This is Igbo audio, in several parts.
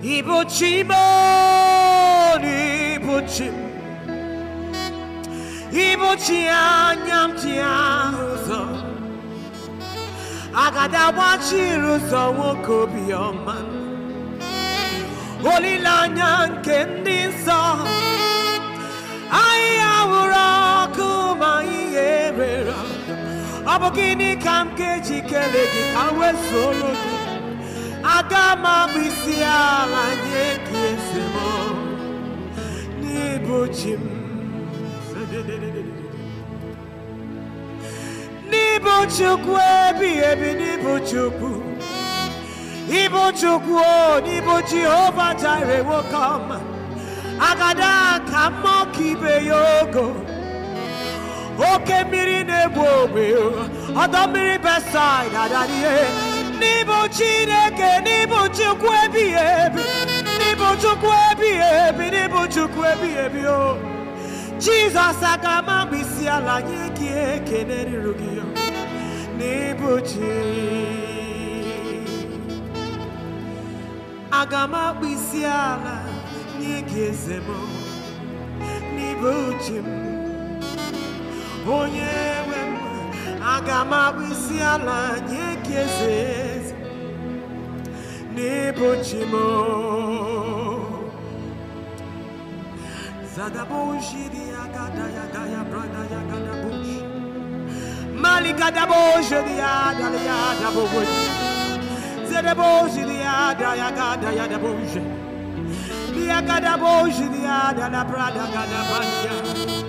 anya ibuchinyatiagadagbachiri ụzọ nwoke obiọma olilaanya nke ndị nsọ ha ahịhịa hụrụ ọkụ ma ayị were ọbụgnị ka m kejikere gị kawesuo aga m abụ isi ala nye gị eze m n'ịbụ chi m n'ịbụ chukwu ebighị ebi n'ịbụ chukwu ịbụ chukwu o n'ịbụ jehova jire nwoke ọma agada ka mmụọ ka ibe ya ogo oke mmiri na-egbu ogbe ọdọ mmiri besaid adarihe n'ịbụ chineke n'ịbụ chukwu ebighị ebi n'ịbụ chukwu ebighị ebi n'ịbụ chukwu ebighị ebi o jizọs aga ama mkpịsị ala nye gị ekele ruru gị n'ịbụ chi aga m akpịsị ala nye gị eze m n'ịbụ m onye nwe aga m abụ isi ala nye gị eze n'ịbụ chi m zadaboshidi agada ya gaya brada ya gada bush mali gada boshidi adali ya dabo bush zadaboshidi ada ya gada ya dabo ya Dia gada boshidi ya la brada gada banya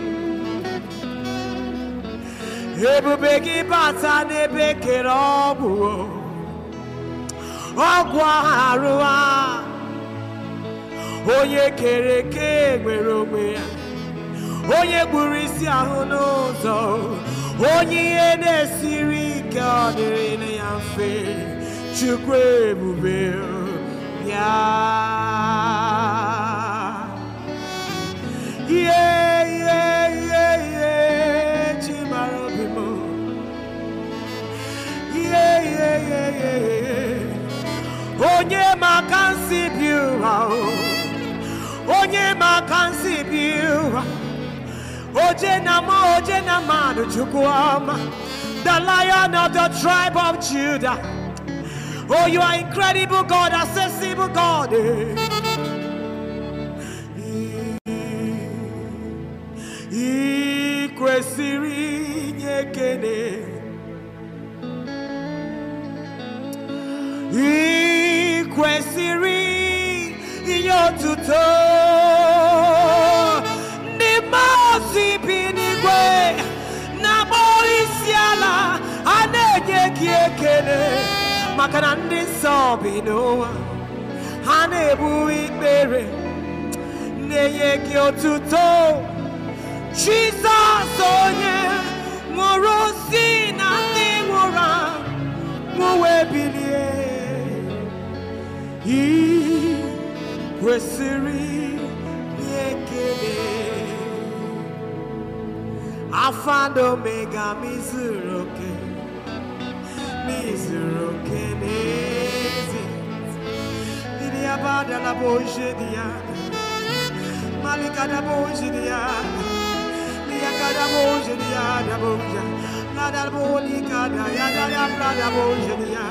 ebube gị bata n'ebe kere ọgwụ ọgwụ arụ a onye kere eke nwere onwe ya onye gburu isi ahụ n'ụzọ onye ihe na-esiri ike ọ dịrị ya mfe chukwu ebube ya ihe onye ma aka nsi bi ụra onye ma aka nsi bi ụra oje na ma oje na mmadụ chukwu ọma the lion of the tribe of judah oh you are incredible god accessible god eh. otuto ndị mmụọ ozi bi n'igwe na-akpọ isi ala a na-enye gị ekele maka na ndị nsọ bi n'ụwa ha na-ebu ikpere na-enye gị otuto jesọs onye nwụrụ si na ndị nwụrụ anwụ wee kwesịrị ekele afado mega mizuru oke mizuru oke n'ezi ndị abadala bụ oje dị ya malikada bụ oje dị ya ndị kada boje ya da boja la da boli kada ya da ya prada boje dia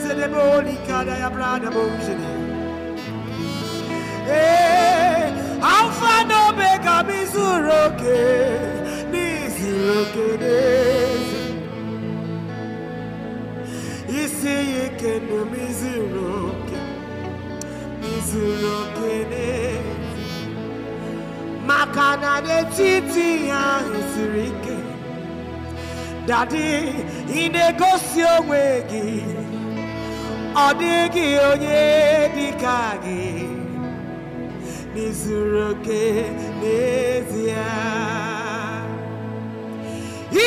se de boli kada ya prada boje dia ee eh, alfa na omega m izuru oke n'izuru oke n'ezi isi ya ike na m izuru oke izuru oke n'ezi maka na n'etiti ya ahụ ike dadi ị na-egosi onwe gị ọ dịghị onye dị ka gị ndị zuru oke n'ezie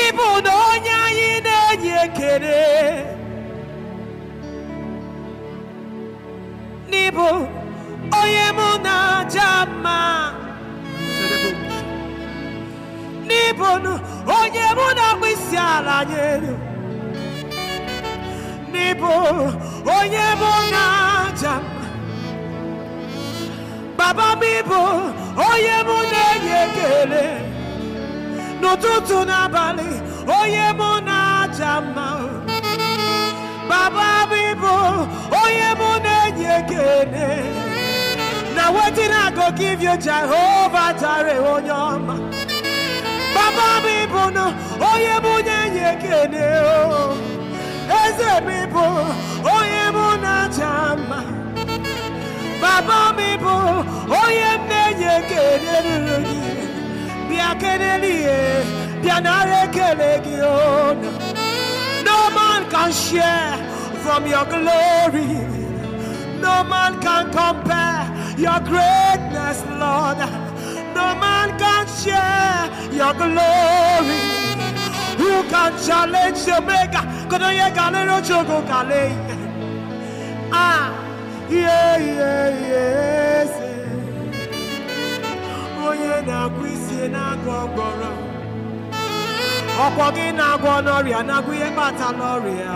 ịbụ na onye anyị na-enye ekele n'ịbụ onye mụ na aja mma n'ịbụ onye mụ na-akpụ isi ala nyere n'ịbụ onye mụ na aja mma baba m ịbụ onye mụ na-enye ekele n'ụtụtụ n'abalị onye mụ na-aja mma baba m ịbụ onye mụ na-enye ekele na wetin I go give you Jehovah Jare onye ọma baba m ịbụ na onye mụ na-enye ekele oh. eze m ịbụ onye mụ na-aja mma baba m bụ onye m na-enye ekele ruru gị bịa kelele ihe bịa nara ekele gị no man can share from your glory no man can compare your greatness lord no man can share your glory who can challenge the maker kono ye galero chogo kale ah ihe ihe ihe eze onye na-agwọ isi na-agwọ ọgbọrọ ọkwọ gị na-agwọ n'ọrịa na ihe kpata n'ọrịa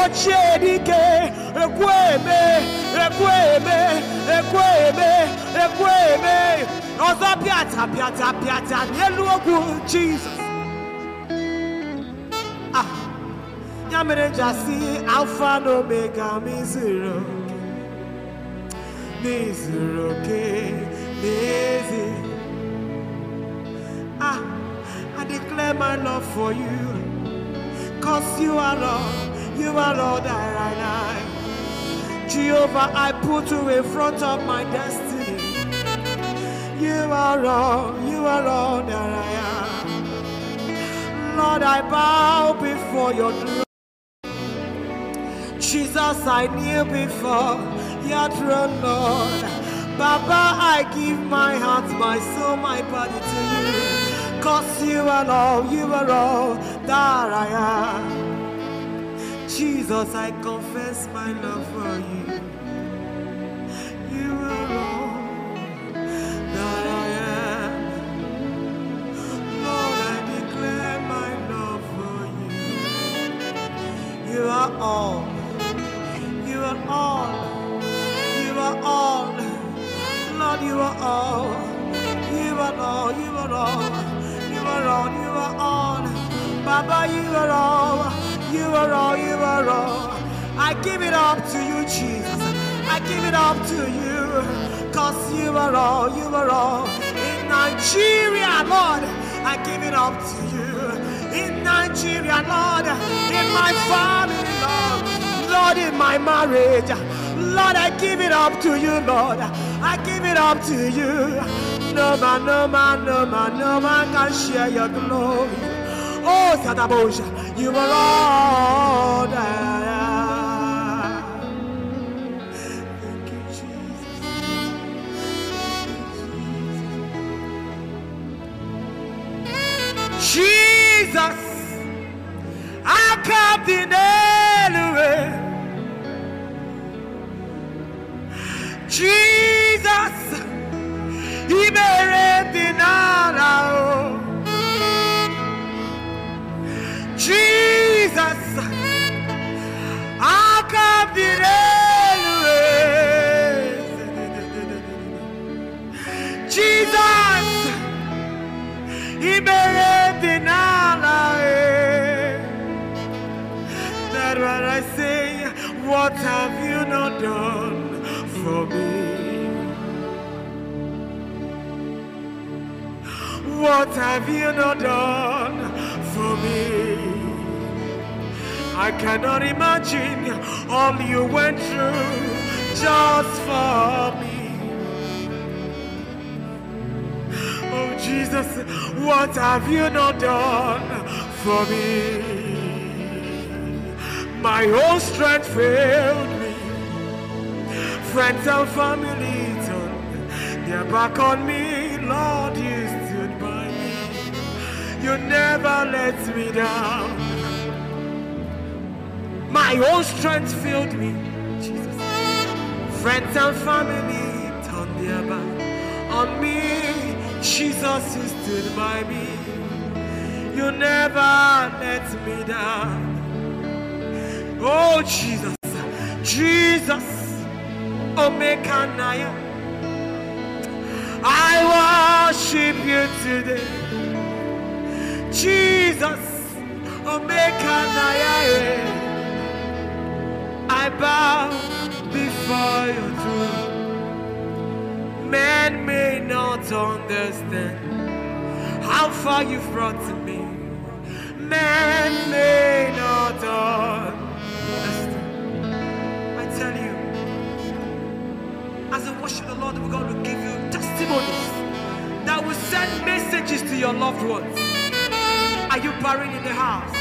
ochie dike ekwe eme ekwe eme ekwe eme ekwe eme ọzọ pịata pịata pịata n'elu ogwu jizọs ah, ya mere ji alfa na omega m na-ezuru oke n'ezi ah I declare my love for you cause you are Lord you are Lord that I am Jehovah I put you in front of my destiny you are Lord you are Lord that I am Lord I bow before your throne Jesus I kneel before your throne, Lord. Baba, I give my heart, my soul, my body to you. Cause you are all, you are all that I am. Jesus, I confess my love for you. You are all that I am. Lord, I declare my love for you. You are all. You are all. all, you are all, you are all, you are all, you are all, you are all. Baba, you are all, you are all, you are all. I give it up to you, Jesus. I give it up to you, cause you are all, you are all. In Nigeria, Lord, I give it up to you. In Nigeria, Lord, in my family, Lord, Lord, in my marriage, Lord, I give it up to you, Lord. I give it up to you. No man, no man, no man, no man can share your glory. Oh, Satabosha, you are all that. Jesus, I come the Elway. Jesus. Jesus, ibere dị n'ala o. Jizọs, aka dị n'elu eze. Jizọs, ibere dị n'ala e. That's what I say, what have you not done? for me. What have you not done for me? I cannot imagine all you went through just for me. Oh Jesus, what have you not done for me? My whole strength failed me. Friends and family turned their back on me, Lord, you You never let me down. My own strength filled me, Jesus. Friends and family turned their back on me. Jesus, you stood by me. You never let me down. Oh, Jesus, Jesus, Omega Naya. I worship you today. Jesus, Omeka Nayae, I bow before your throne. men may not understand how far you've brought to me. men may not understand. I tell you, as I worship the Lord, we're going to give you testimonies that will send messages to your loved ones. Are you buried in the house?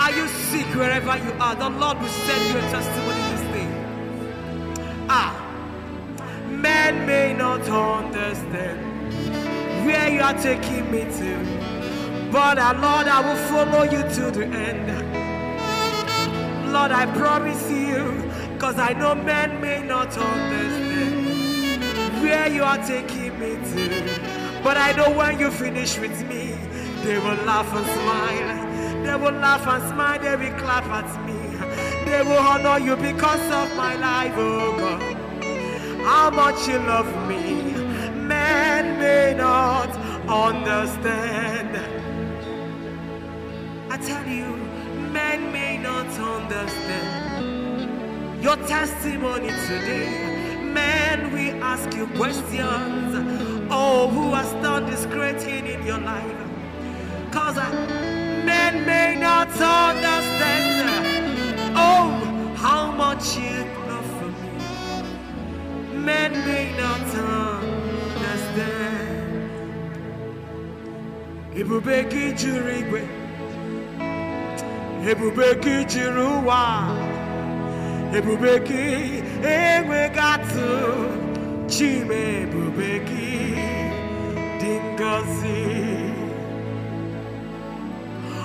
Are you sick wherever you are? The Lord will send you a testimony this day. Ah, men may not understand where you are taking me to, but uh, Lord, I will follow you to the end. Lord, I promise you, because I know men may not understand where you are taking me to, but I know when you finish with me. They will laugh and smile. They will laugh and smile. They will clap at me. They will honor you because of my life, oh God. How much you love me, men may not understand. I tell you, men may not understand. Your testimony today, men we ask you questions. Oh, who has done this great thing in your life? cause men may not understand oh how much you love for me men may not understand ebube gị igwe ebube gị uwa ụwa ebube gị enweghị atụ chime ebube gị dị ngọzi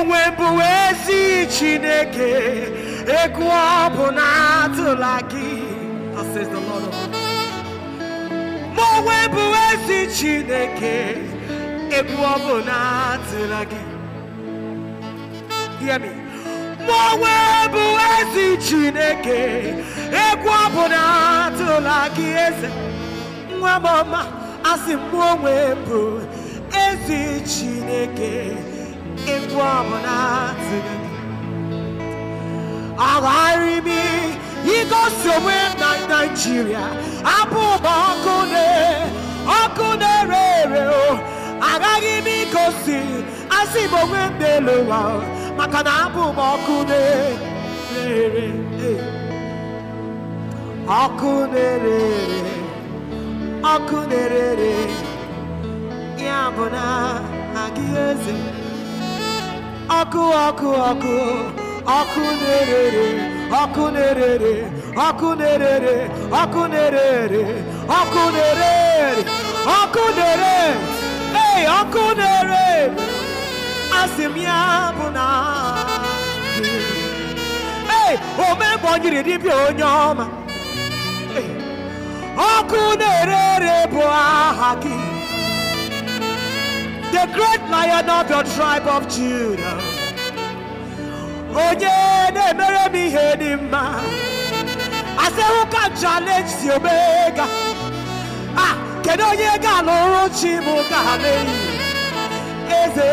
onwe bụ ezi Chineke egwu ọ bụ na atụla gị ma onwe bụ ezi Chineke egwu ọ bụ na atụla gị ma onwe bụ ezi Chineke egwu ọ bụ na atụla gị eze nwa m ọma asị m onwe bụ ezi Chineke egwu ọbụla agharịbi igosi onwe na nigeria abụ ụba ọkụ ọkụ na-ere ere agaghị m ikosi asị m onwe m n'elu ụwa maka na abụ m ọkụ na-ere e. ọkụ na na-ere ọkụ ọkụ ọkụ ọkụ na-erere ọkụ na-erere ọkụ na-erere ọkụ na-erere ọkụ na-erere ọkụ na-ere ee ọkụ na-ere asị m ya bụ na ee o ọ nyiri onye ọma ọkụ na bụ aha the great lion of your tribe of Judah. Onye na-emere m ihe dị mma. I say who can challenge Ah, kedu onye ga-alụrụ chi m ga-alụ eze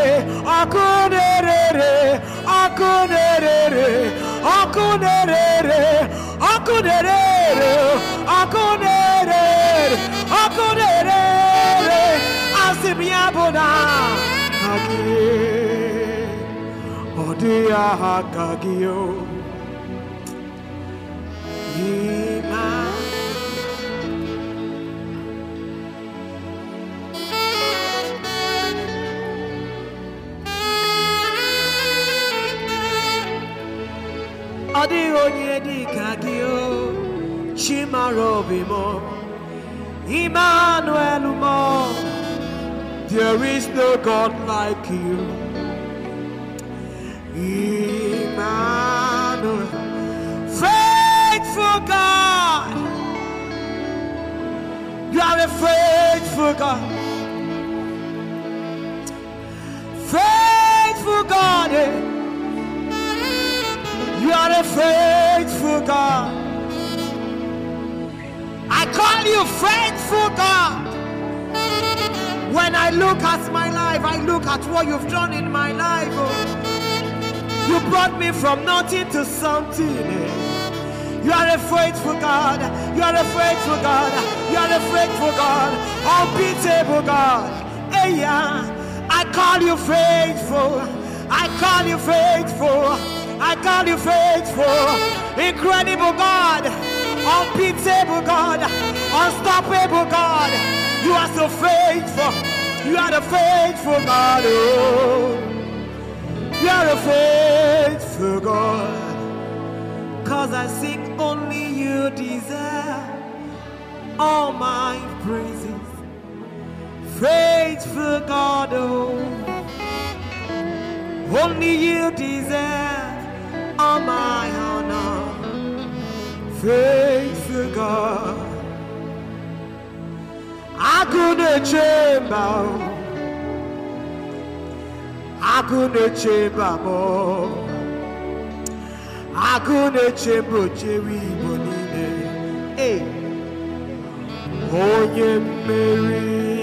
ọkụ na-erere ọkụ na-erere ọkụ na-erere ọkụ na-erere ọkụ na-erere ọkụ na-erere aha ọ dịghị aha onye dị ka gị chimara obi m mọ There is no God like you. Emmanuel, faithful God. You are a faithful God. Faithful God. eh You are a faithful God. I call you faithful God. When I look at my life, I look at what you've done in my life. Oh. You brought me from nothing to something. Eh. You are a faithful God. You are a faithful God. You are a faithful God. Unbeatable God. Hey, yeah. I call you faithful. I call you faithful. I call you faithful. Incredible God. Unbeatable God. Unstoppable God. You are so faithful. You are the faithful God. Oh. You are a faithful God. Cause I sing only you deserve all my praises. Faithful God. Oh. Only you deserve all my honor. Faithful God. I couldn't chamber. I couldn't mba more. I couldn't chamber Jerry Bonine. Hey, oh yeah, Mary.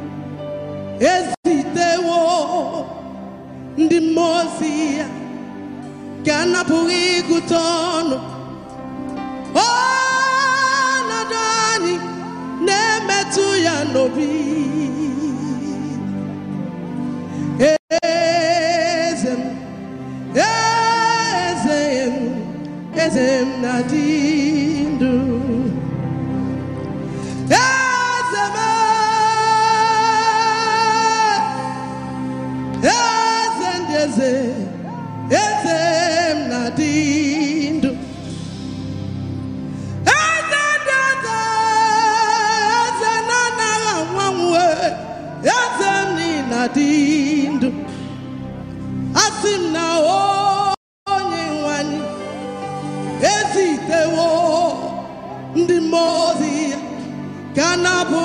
na-adịghị ndụ asị m na onye nwanyị ezitewo ndị mmụọ ozi ya na-abụ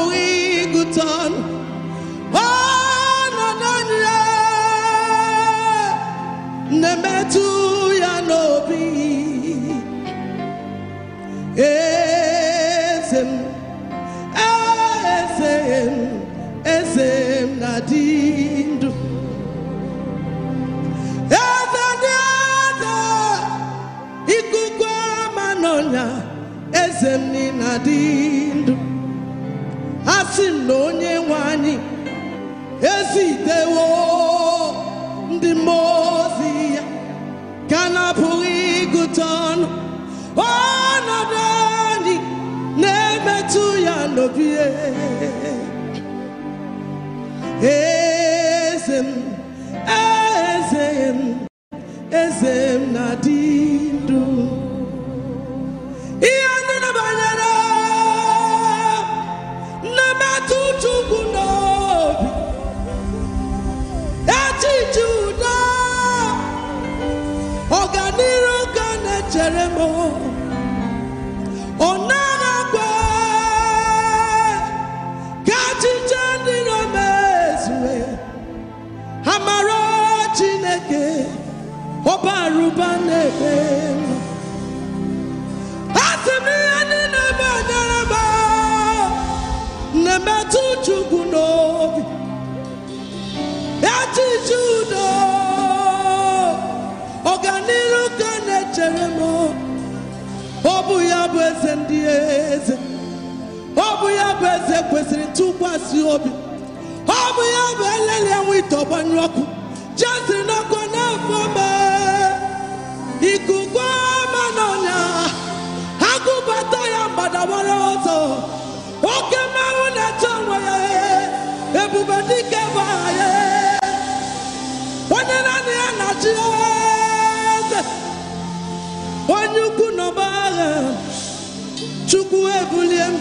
na-adị ndụ a sị m na onye nwe anyị ezitewo ndị mmụọ ya ka na-apụghị ịgụta ọnụ ọnọdụ anyị na-emetụ ya n'obi na obi ọ bụ ya bụ elele enwe ite ọgbanyụ ọkụ jesiri n'ọkụ na-afọ ikuku ama n'ọnya agụbata ya gbadawara ọzọ oke mmanwụ na-eche onwe ya ebube dike bụ ya onye naanị ya na-achị eze onye ukwu n'ọba agha chukwu ebulie m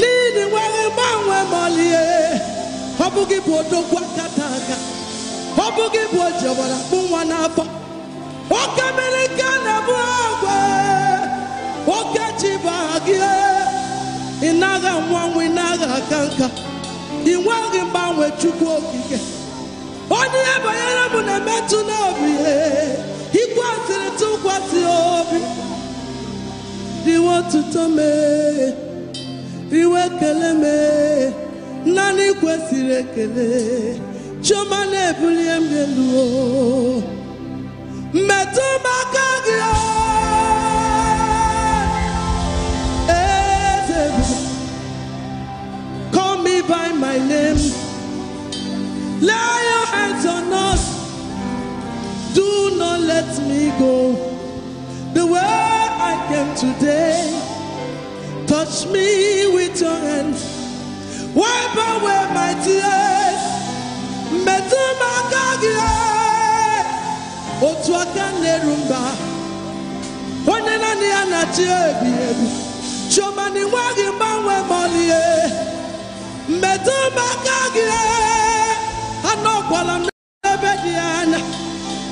n'ihi nwere gbanwe malie ọ bụ gị bụ odogwu akata aka ọ bụ gị bụ kpụ nwa n'afọ oke mmiri na-ebu agwa oke ji bụ aha gị ị naghị anwanwụ ị naghị aka nka ị nweghị mgbanwe chukwu okike onye ihe banyere m na-emetụ n'obi ikwasịrị tụkwasị obi dị otuto mee iwe kele m naanị kwesịrị ekele chioma na-ebulie m elu mmetụ m call me by my name lay your hands on us do not let me go the way I came today Touch me with your hand. Wipe away my tears. Metụ m aka gị otu aka na-eru mba onye naanị ya na-achị ebighị ebi chioma na ịnweghị mgbanwe maọlie metụ m aka gị anọkwala m n'ebe dị anya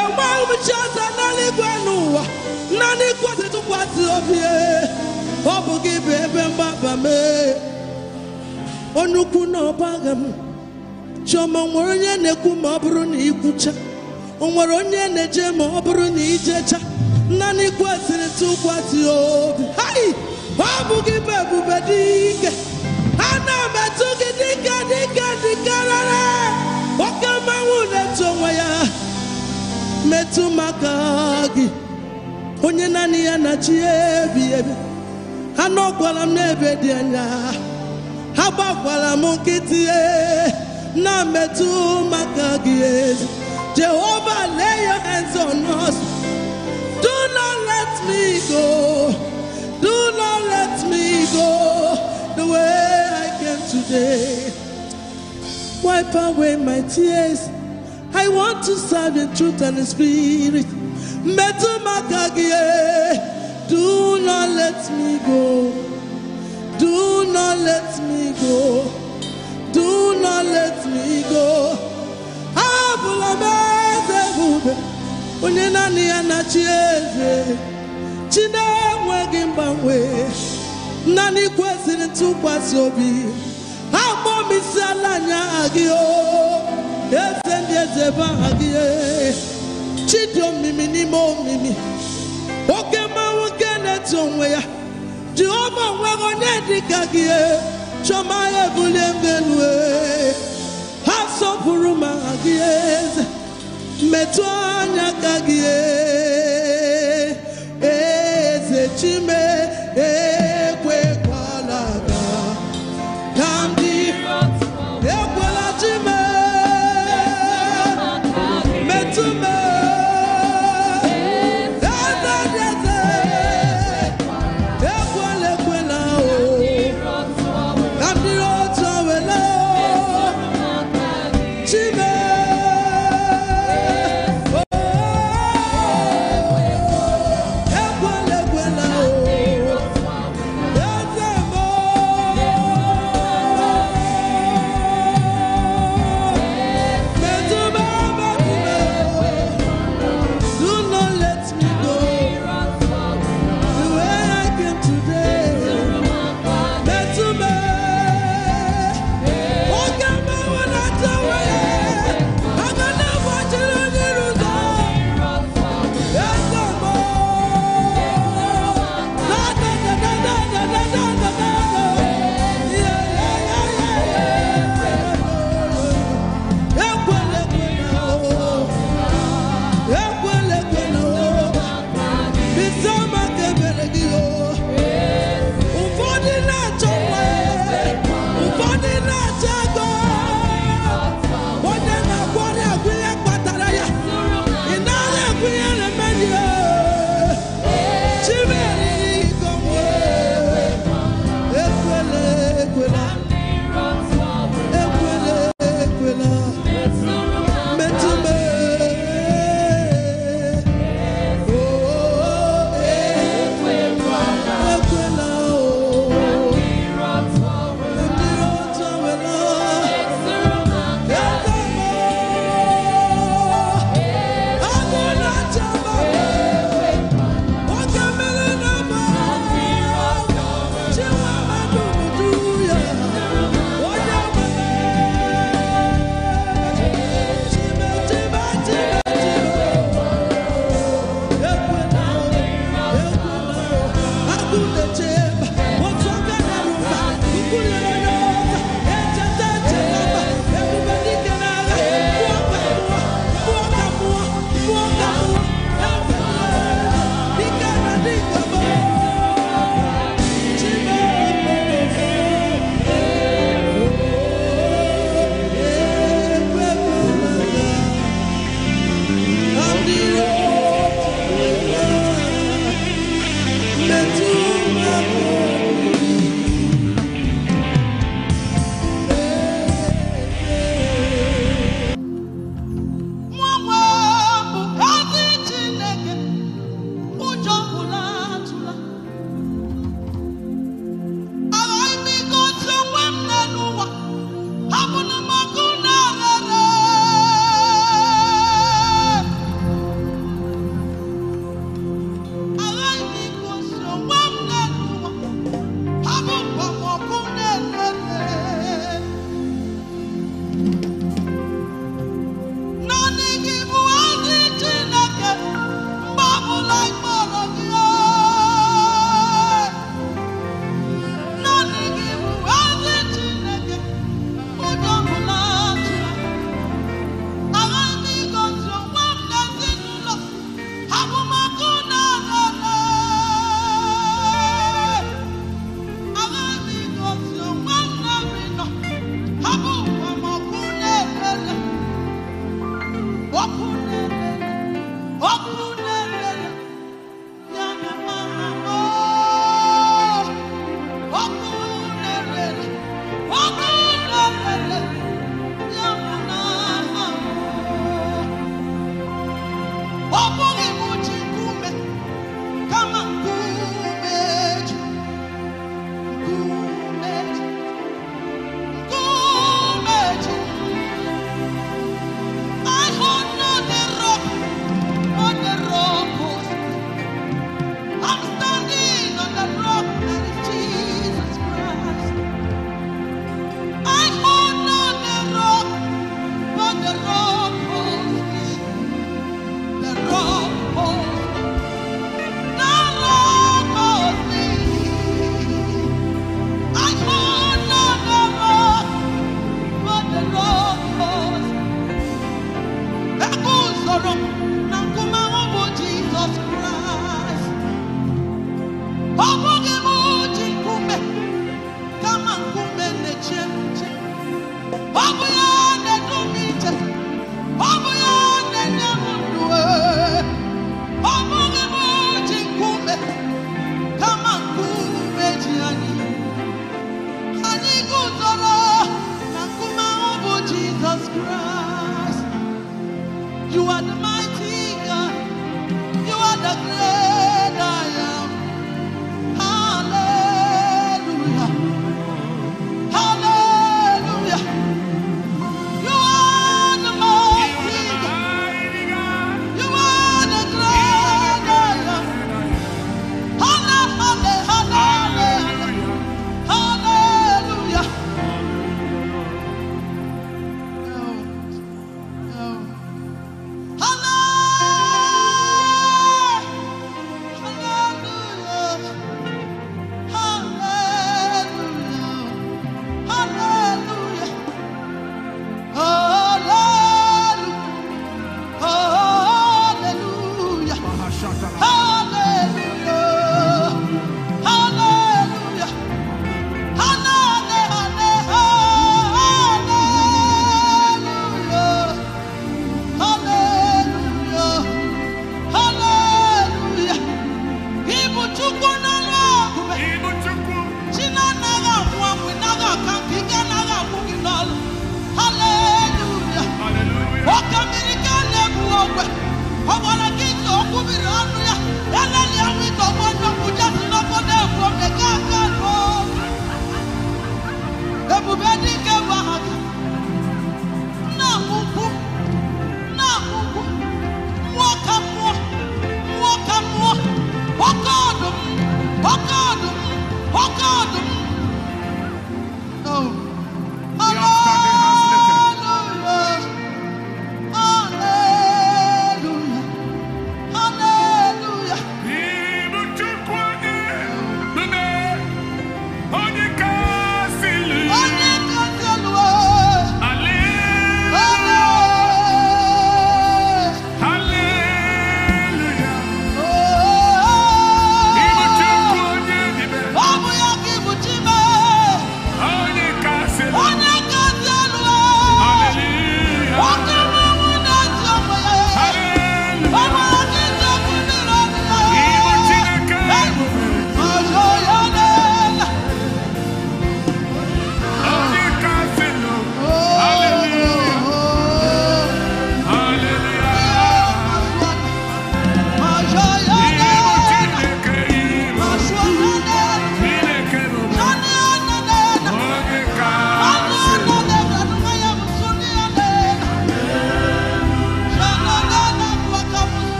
enweghị m chi ọzọ naanị igwe n'ụwa naanị ikwesị tụkwasị obi ọ bụ gị bụ ebe mgbaba mee onye na ọbaga m chioma nwere onye na-ekwu ma ọ bụrụ na ikwucha o nwere onye na-eje ma ọ bụrụ na ijecha naanị kwesịrị tụ kwasị obi ọ bụ gị bụ ebube dị ike ana m etụ gị dịka dịka dịkarara oke mmanwụ na etu onwe ya metụ maka gị onye naanị ya na chi ebi ebi anọkwala m n'ebe dị anya ha gbakwara m nkịtị na metụ maka gị Jehovah lay your hands on us do not let me go do not let me go the way I came today wipe away my tears I want to serve in truth and spirit metụ maka gị Do not let me go. Do not let me go. Do not let me go. Abụla onye naanị ya na-achị eze. Chi na-enweghị mgbanwe, naanị kwesịrị ntụkwasị obi. ha m ala anya gị o, eze ndị eze aha gị. omimi n'ime omimi. Oke na-eto onwe ya jehova onwere onye dịka gị e, chọma ya ebulie m elu e. ha sọpụrụ ma gị eze metụ anya ka gị e.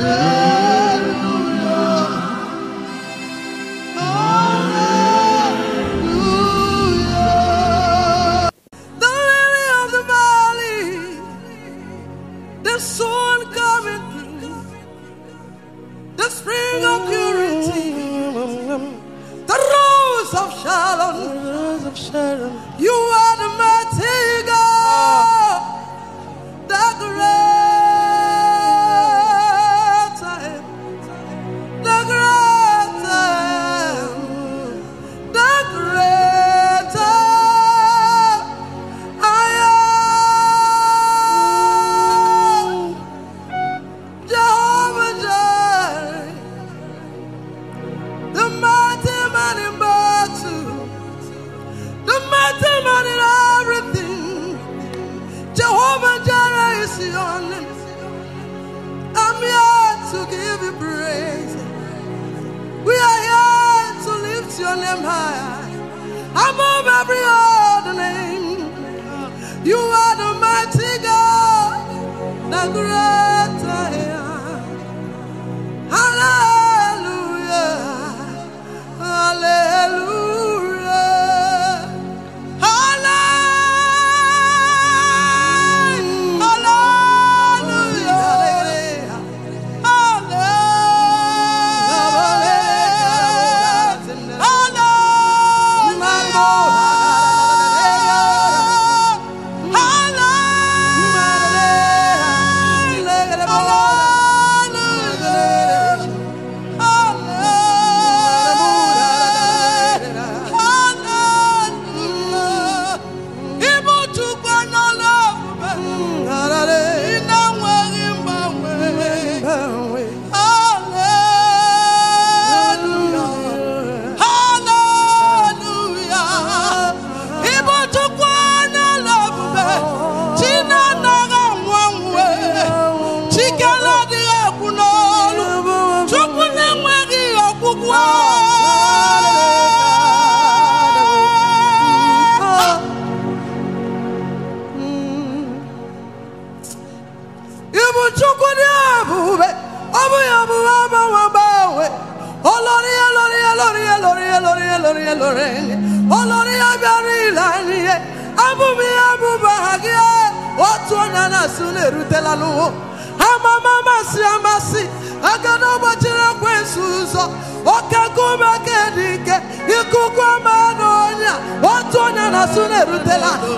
Amen. ọtụtụ na la. anụ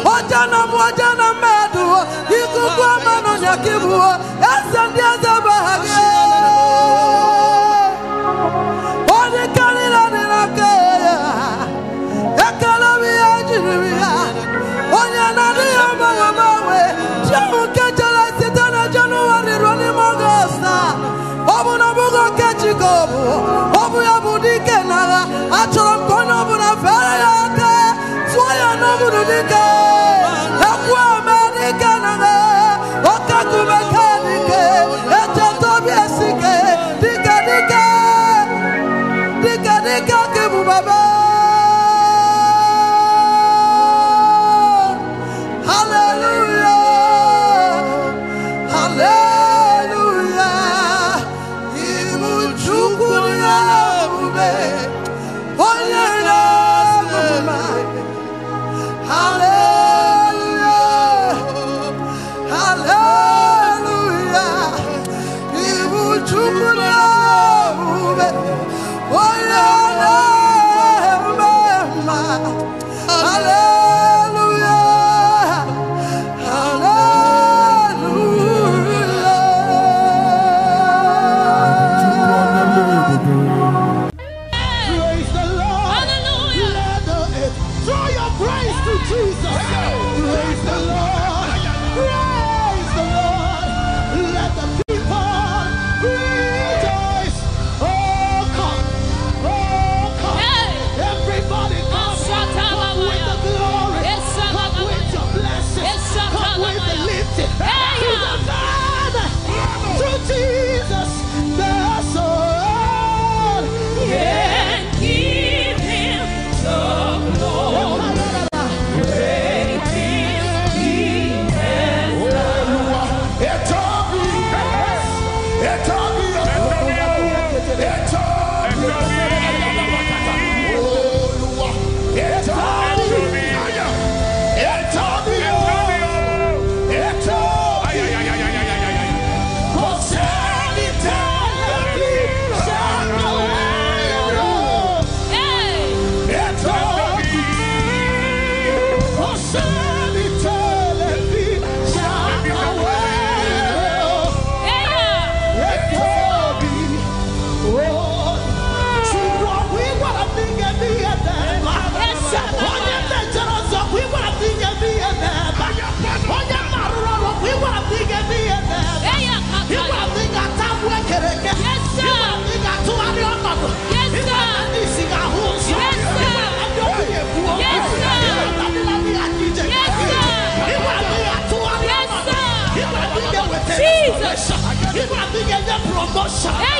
Ei!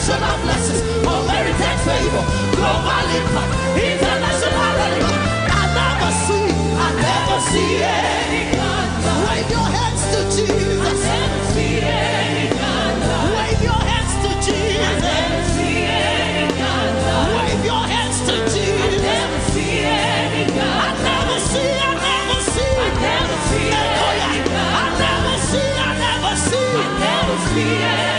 national places for heritage favor, global impact, international relief. I never see, I never see any counter. Wave your hands to Jesus. I never see any counter. Wave your hands to Jesus. I never see any counter. Wave your hands to Jesus. I never see any counter. I never see, I never see. I never see any counter. I never see, I never see. I never see any